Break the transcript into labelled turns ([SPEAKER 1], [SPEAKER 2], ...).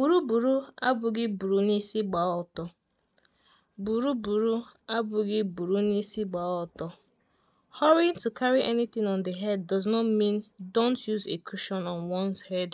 [SPEAKER 1] Buru abụghị buru n'isi gbaa ọtọ. Buru abụghị buru n'isi gbaa to carry anything on the head does not mean don't use a cushion on one's head.